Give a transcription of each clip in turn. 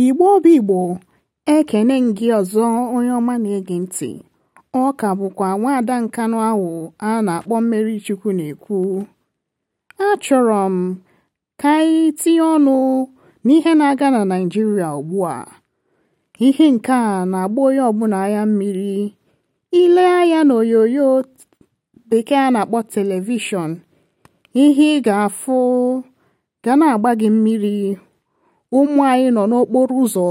igbo obi igbo ekene gị ọzọ onye ọma na-ege ntị ọ ka bụkwa nwaada nkanụ ahụ a na-akpọ mmeri chukwu na-ekwu achọrọ m ka anyị tinye ọnụ n'ihe na-aga na Naịjirịa ugbu a ihe nke a na-agba onye ọbụla ya mmiri ile anya n'onyonyo bekee a na-akpọ telivishọn ihe ị ga-afụ ga na-agba gị mmiri ụmụ anyị nọ n'okporo ụzọ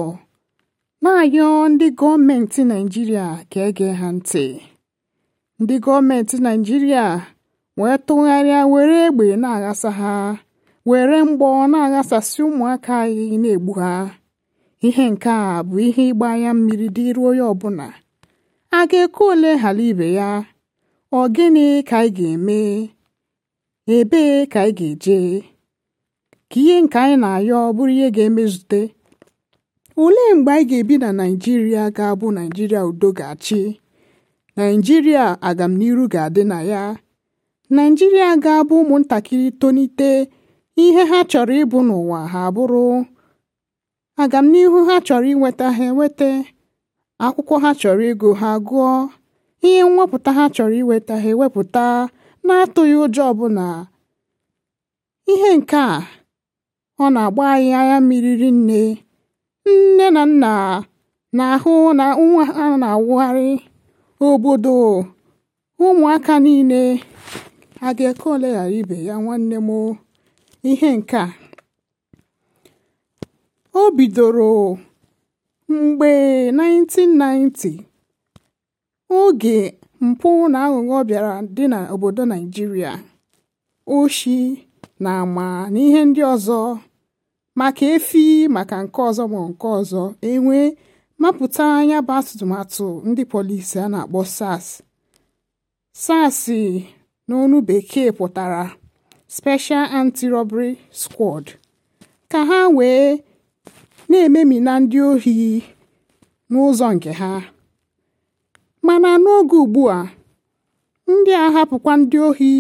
na anyọ ndị gọọmenti Naịjirịa ka ege ha ntị ndị gọọmenti Naịjirịa wee tụgharịa were egbe na-aghasa ha were mgbọ na-aghasasị ụmụaka anyị na-egbu ha ihe nke a bụ ihe ịgba anya mmiri dịrị onye ọbụla a ga-ekwe ole hala ibe ya ọ gịnị ka anyị ga-eme ebee ka anyị ga-eje ka ihe nke anyị na-ayọ bụrụ ihe ga-emezute olee mgbe anyị ga-ebi na naijiria ga-abụ naijiria udo ga-achị naijiria agamniru ga-adị na ya naijiria ga-abụ ụmụntakịrị tonite ihe ha chọrọ ịbụ n'ụwa ha bụrụ agamnihu ha chọrọ inweta ha enweta akwụkwọ ha chọrọ ego ha gụọ ihe mwepụta ha chọrọ iweta ha ewepụta na-atụghị ụjọ ọbụla ihe nke a ọ na-agba anyị anya mmiri rinne nne na nna na-ahụ na nwa ha na-awụgharị obodo ụmụaka niile adịka ole ghara ibe ya nwanne m ihe nke a o bidoro mgbe 1990 oge mpụ na aghụghọ bịara dị n'obodo o oshi na ama na ihe ndị ọzọ maka efi maka nke ọzọ ma nke ọzọ enwee mapụta anya bụ atụmatụ ndị polisi a na-akpọ SARS SARS n'onu bekee pụtara Special Anti-Robbery Squad ka ha wee na na ndị ohi n'ụzọ nke ha mana n'oge ugbu a ndị a hapụkwa ndị ohi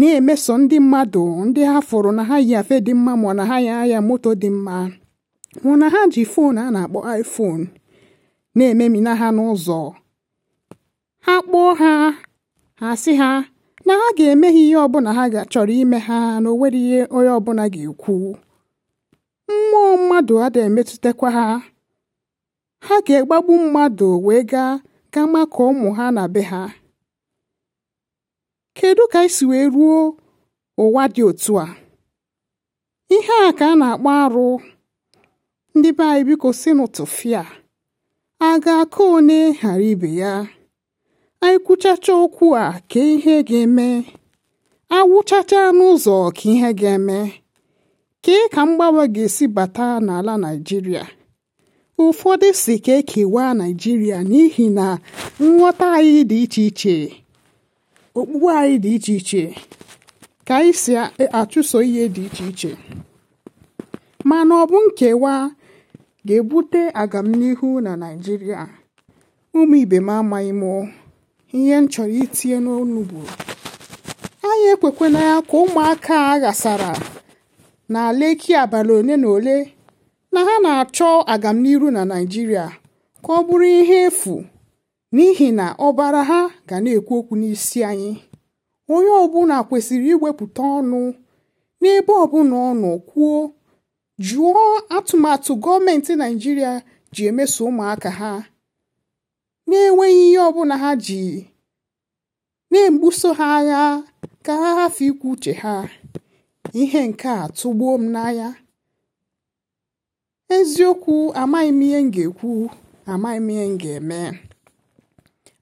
na-emeso ndị mmadụ ndị ha fụrụ na ha yi afe dị mma ma na ha ya moto dị mma hụ na ha ji foonu a na-akpọ iPhone na-ememina ha n'ụzọ ha kpọọ ha ha sị ha na ha ga-eme ha ihe ọbụla ha chọrọ ime ha na onwere ihe onye ọbụla ga-ekwu mmụọ mmadụ ada emetụtakwa ha ha ga-egbagbu mmadụ wee gaa ga makụọ ụmụ ha na be ha kedu ka anyị wee ruo ụwa dị otu a ihe a ka a na-akpọ arụ ndị be anyị biko si n'ụtụfịa a ga akụ onye ghara ibe ya anyị kwuchacha okwu a ka ihe ga-eme awụchacha n'ụzọ ka ihe ga-eme kee ka mgbanwe ga-esi bata n'ala Naijiria. ụfọdụ si ka ekewa Naijiria n'ihi na nghọta anyị dị iche iche okpukpe anyị dị iche iche ka anyị si e, achụso ihe dị iche iche mana ọ bụ nkewa ga-ebute agamnihu na Naịjirịa ụmụ ibe m amaghị m ihe m chọrọ itinye n'ọnụ bụ anyị ekwekwana ya ka ụmụaka a ghasara na Leki abalị ole na ole na ha na-achọ agamnihu na Naijiria ka ọ bụrụ ihe efu n'ihi na ọbara ha ga na-ekwu okwu n'isi anyị onye ọbụla kwesịrị iwepụta ọnụ n'ebe ọbụla ọ nọ kwuo jụọ atụmatụ gọọmenti Naịjirịa ji emeso ụmụaka ha na-enweghị ihe ọbụla ha ji na-egbuso ha agha ka ha hafe ikwu uche ha ihe nke a tụgbuo m n'anya eziokwu amaghị m ihe m ga-ekwu amaghị m ihe m ga-eme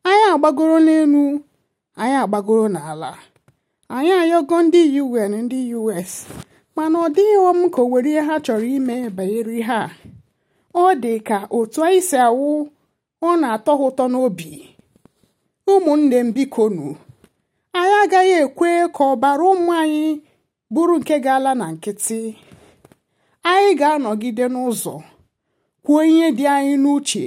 anyị agbagoro n'elu anyị agbagoro n'ala anyị ayọgo ndị un ndị us mana ọ dịghị ọm ka o were ihe ha chọrọ ime banyere ihe a ọ dị ka otu anyị si awụ ọ na-atọ ụtọ n'obi ụmụnne m biko anyị agaghị ekwe ka ọbara ụmụ anyị bụrụ nke ga-ala na nkịtị anyị ga-anọgide n'ụzọ kwuo ihe dị anyị n'uche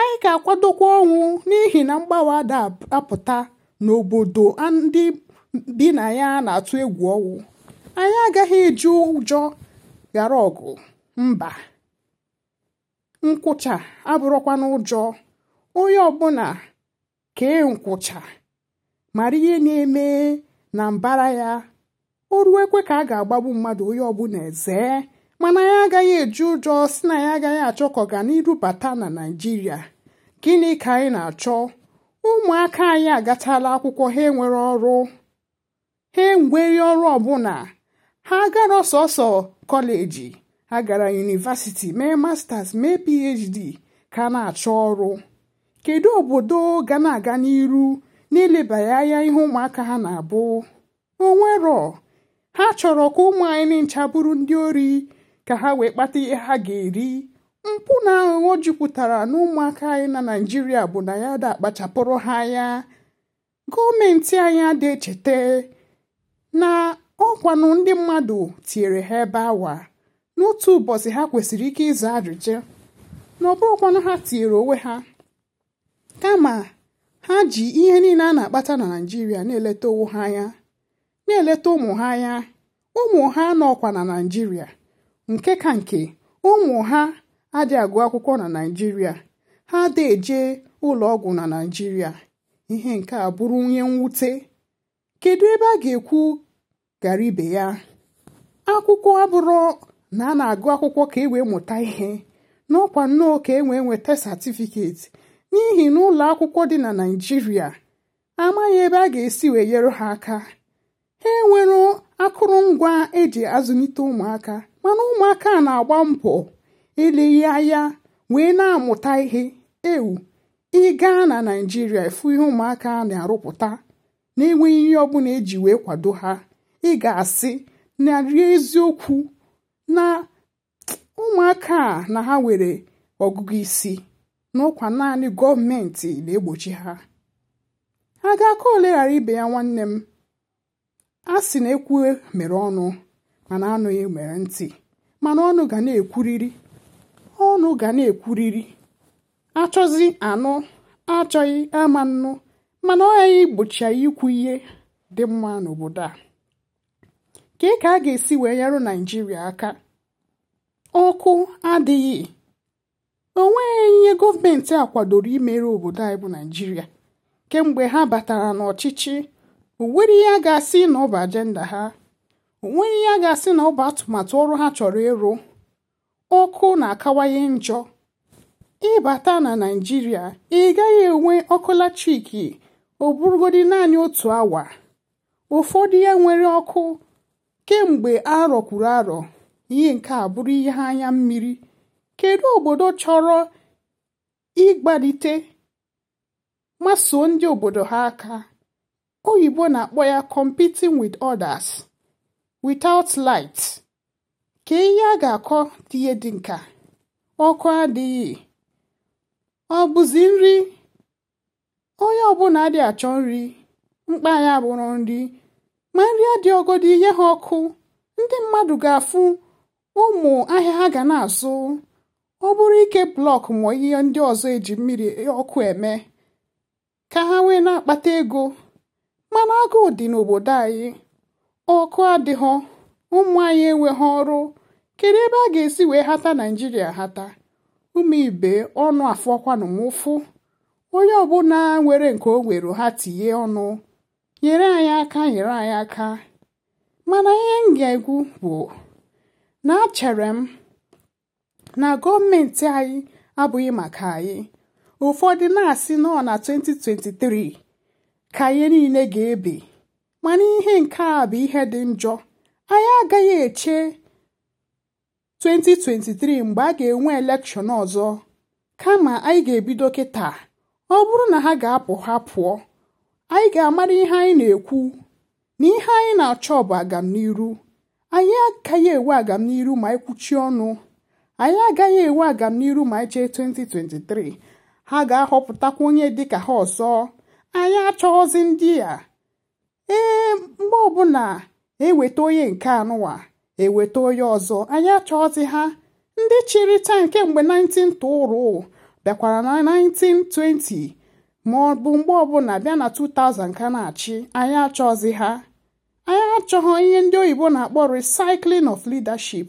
anyị ga-akwadokwa ọnwụ n'ihi na mgbawa ada apụta n'obodo ndị bi na ya na-atụ egwu ọnwụ anyị agaghị eji ụjọ ghara ọgụ mba nkwụcha abụrụkwa n'ụjọ onye ọbụla kee nkwụcha mara ihe na-eme na mbara ya o ruo ekwe ka a ga-agbagbu mmadụ onye ọbụla ezee mana ya agaghị eji ụjọ si na ya agaghị achọ ka ọganiru bata na naijiria gịnị ka anyị na-achọ ụmụaka anyị agatala akwụkwọ ha enwere ọrụ ha enwere ọrụ ọbụla ha gara sọsọ kọleji ha gara yunivasiti mee masters mee phd ka na-achọ ọrụ kedu obodo ga na-aga n'iru n'ilebanye anya ihe ụmụaka ha na-abụ onwero ha chọrọ ka ụmụ anyị ncha bụrụ ndị ori ka ha wee kpata ihe ha ga-eri mpụ na aghụghọ jupụtara na ụmụaka anyị na naijiria bụ na ya da akpachapụrụ ha ya gọọmenti anyị adị echeta na ọkwanụ ndị mmadụ tinyere ha ebe awa n'otu ụbọchị ha kwesịrị ike ịza ajụjụ na ọbụrụkwanụ ha tinyere onwe ha kama ha ji ihe niile a na-akpata na naijiria na-eleta onwe ha anya na-eleta ụmụ ha anya ụmụ ha nọkwa na naijiria nke ka nke ụmụ ha adị agụ akwụkwọ na naijiria ha adịghị eje ụlọ ọgwụ na naijiria ihe nke a bụrụ onye mwute kedu ebe a ga-ekwu gara ibe ya akwụkwọ abụrụ na a na-agụ akwụkwọ ka e wee mụta ihe n'ọkwa nnọọ ka e wee nweta satifiketi n'ihi na ụlọ akwụkwọ dị na naijiria amaghị ebe a ga-esi wee nyere ha aka ha enwere akụrụngwa eji azụlite ụmụaka mana ụmụaka a na-agba mbọ ile anya wee na-amụta ihe ewu ịga na naijiria efu ihe ụmụaka na-arụpụta na-enweghị ihe ọbụla eji wee kwado ha ị ga-asị narị eziokwu na ụmụaka a na ha nwere ọgụgụ isi n'ụkwa naanị gọọmenti na-egbochi ha a ga-aka ole ghara ibe ya nwanne m a sị na ekwu e mere ọnụ mana anụghị mere ntị mana ọnụ ga na-ekwuriri ọnụ ga na-ekwuriri achọzi anụ achọghị ama nnụ mana ọ ya igbochi ikwu ihe dị mma n'obodo a kee ka a ga-esi wee nyerụ naijiria aka ọkụ adịghị onweghị ihe gọọmenti a kwadoro imere obodo anyị bụ naijiria kemgbe ha batara n'ọchịchị o nwere ihe a ga-asị na ọ ajenda ha onweghị ya ga-asị na ọ bụ atụmatụ ọrụ ha chọrọ ịrụ ọkụ na-akawanye njọ ịbata na Naịjirịa ị gaghị enwe ọkụ latrik ọ bụrụgodi naanị otu awa ụfọdụ ya nwere ọkụ kemgbe arọ kwuru arọ ihe nke a bụrụ ihe anya mmiri kedu obodo chọrọ ịgbalite masoo ndị obodo ha aka oyibo na-akpọ ya competing with others without light ka ihe a ga-akọ tinye dị nka ọkụ adịghị ọ bụzi nri onye ọbụla adị achọ nri mkpa ya bụrụ nri ma nri adịọgodi ihe ha ọkụ ndị mmadụ ga-afụ ụmụ ahịa ha ga na-azụ ọ bụrụ ike blọk ma ihe ndị ọzọ eji mmiri e, ọkụ eme ka ha wee na-akpata ego mana agụụ dị n'obodo anyị ọkụ adịghọ ụmụ anyị enweghị ọrụ kedu ebe a ga-esi wee hata naijiria hata ụmụ ibe ọnụ afọ m ụfụ onye ọbụla nwere nke o nwere ha tinye ọnụ nyere anyị aka nyere anyị aka mana ihe m ga-egwu bụ na achere m na gọọmenti anyị abụghị maka anyị ụfọdụ na-asị nọ na 2023 ka anyị niile ga-ebi mana ihe nke a bụ ihe dị njọ anyị agaghị eche 2023 mgbe a ga-enwe elekshọn ọzọ kama anyị ga-ebido kịta ọ bụrụ na ha ga-apụ ha pụọ anyị ga-amara ihe anyị na-ekwu na ihe anyị na-achọ bụ agamniru anyị agaghị enwe agamniru ma anyị kwuchie ọnụ anyị agaghị enwe agamniru ma eche chee 2023 ha ga-ahọpụtakwa onye dịka ha ọzọ anyị achọghọzi ndị a ee mgbe ọbụla eweta onye nke anụwa eweta onye ọzọ anyị achọghịzi ha ndị chịrị taa kemgbe 1920 bịakwara na 1920 ma ọ bụ mgbe ọbụla bịa na 2000 ka na-achị anyị achọghịzi ha anyị achọghọ ihe ndị oyibo na-akpọ recycling of leadership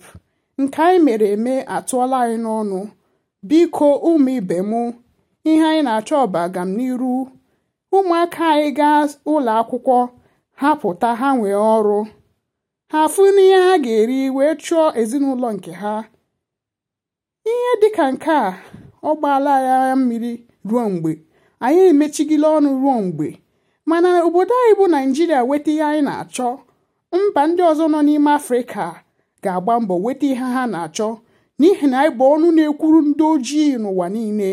nke anyị mere eme atụọla anyị n'ọnụ biko ụmụ ibe mụ ihe anyị na-achọ bụ agamnihu ụmụaka anyị gaa ụlọ akwụkwọ ha pụta ha nwee ọrụ ha afụ n'ihe ha ga-eri wee chụọ ezinụlọ nke ha ihe dịka nke a ọ gbaala ya mmiri ruo mgbe anyị emechigila ọnụ ruo mgbe mana obodo anyị bụ naijiria weta ihe anyị na-achọ mba ndị ọzọ nọ n'ime afrịka ga-agba mbọ weta ihe ha na-achọ n'ihi na anyị bụ ọnụ na-ekwuru ndị ojii n'ụwa niile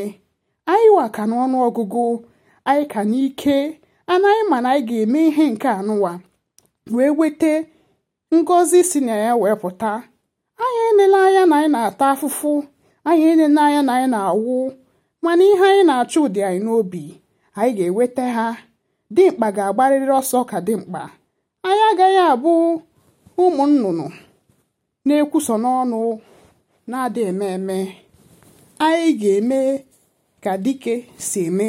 anyị wa ka n'ọnụ ọgụgụ anyị ka n'ike anaghị ma na anyị ga-eme ihe nke anụwa wee weta ngọzi si na ya wee pụta anyị enele anya na anyị na-ata afụfụ anyị enele anya na anyị na-awụ mana ihe anyị na-achọ ụdị anyị n'obi anyị ga-eweta ha dimkpa ga-agbarịrị ọsọ ka dimkpa anyị agaghị abụ ụmụ nnụnụ na-ekwuso n'ọnụ na adị eme eme anyị ga-eme ka dike si eme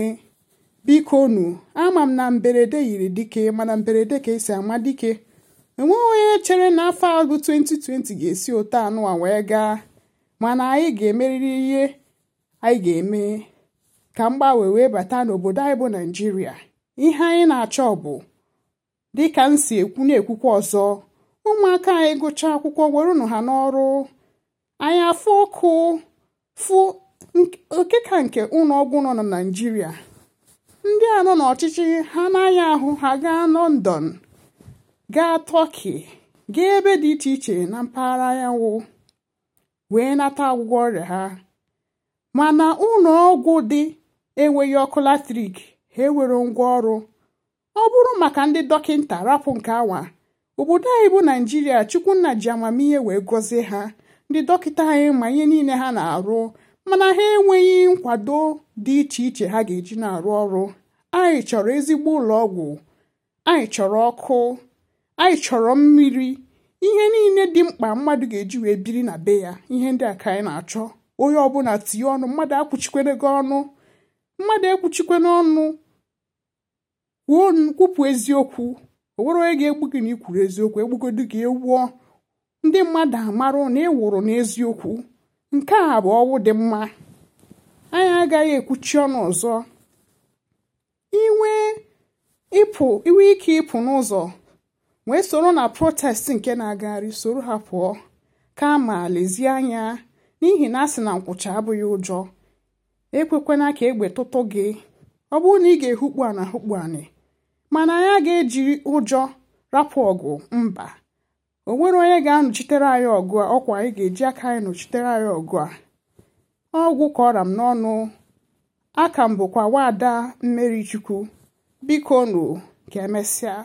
biko nu ama m na mberede yiri dike mana mberede ka esi ama dike enweghị onye chere na afọ abụ 2020 ga-esi ụta anụwa wee gaa mana anyị ga-emerịrị ihe anyị ga-eme ka mgbanwe wee bata n'obodo anyị bụ naijiria ihe anyị na-achọ bụ dịka m si ekwu na-ekwukwa ọzọ ụmụaka anyị gụchaa akwụkwọ werunu ha n'ọrụ anyị afọ ọkụ fụ oke ka nke ụlọ ọgwụ nọ na naijiria ndị a nọ n'ọchịchị ha anaghị ahụ ha gaa lọndọn gaa tọki gaa ebe dị iche iche na mpaghara anyanwụ wee nata ọgwụgwọ ọrịa ha mana ụlọ ọgwụ dị enweghị ọkụ latrik ha ngwa ọrụ ọ bụrụ maka ndị dọkịta rapụ nke awa obodo anyị bụ naijiria chukwunna ji amamihe wee gọzie ha ndị dọkịta anyị ma ihe niile ha na-arụ mana ha enweghị nkwado dị iche iche ha ga-eji na-arụ ọrụ anyị chọrọ ezigbo ụlọ ọgwụ anyị chọrọ ọkụ anyị chọrọ mmiri ihe niile dị mkpa mmadụ ga-eji wee biri na be ya ihe ndị a ka anyị na-achọ onye ọbụla tinye ọnụ mmadụ akwụchikwere gị ọnụ mmadụ ekwuchikwere ọnụ kwupụ eziokwu o nwere onye ga-egbu gị na ikwuru eziokwu egbugodu gị ewuo ndị mmadụ amarụ na ị e wụrụ n'eziokwu nke a bụ ọwụ dị mma anyị agaghị ekwuchi ọnụ ọzọ inwe ike ịpụ n'ụzọ wee soro na protest nke na-agagharị soro ha pụọ ka kama lezie anya n'ihi na a sị na nkwụcha abụghị ụjọ ekwekwana ka egbe tụtụ gị ọ bụrụ na ị ga-ehukpu ana hukpu anị mana anyị aga eji ụjọ rapụ ọgụ mba o nwere onye ga-anọchitere anyị ọgụ a ọkwa anyị ga-eji aka anyị nọchitere anyị ọgụ a ọgwụ kọra m n'ọnụ aka m bụkwa nwaada mmeri biko nụ ka emesịa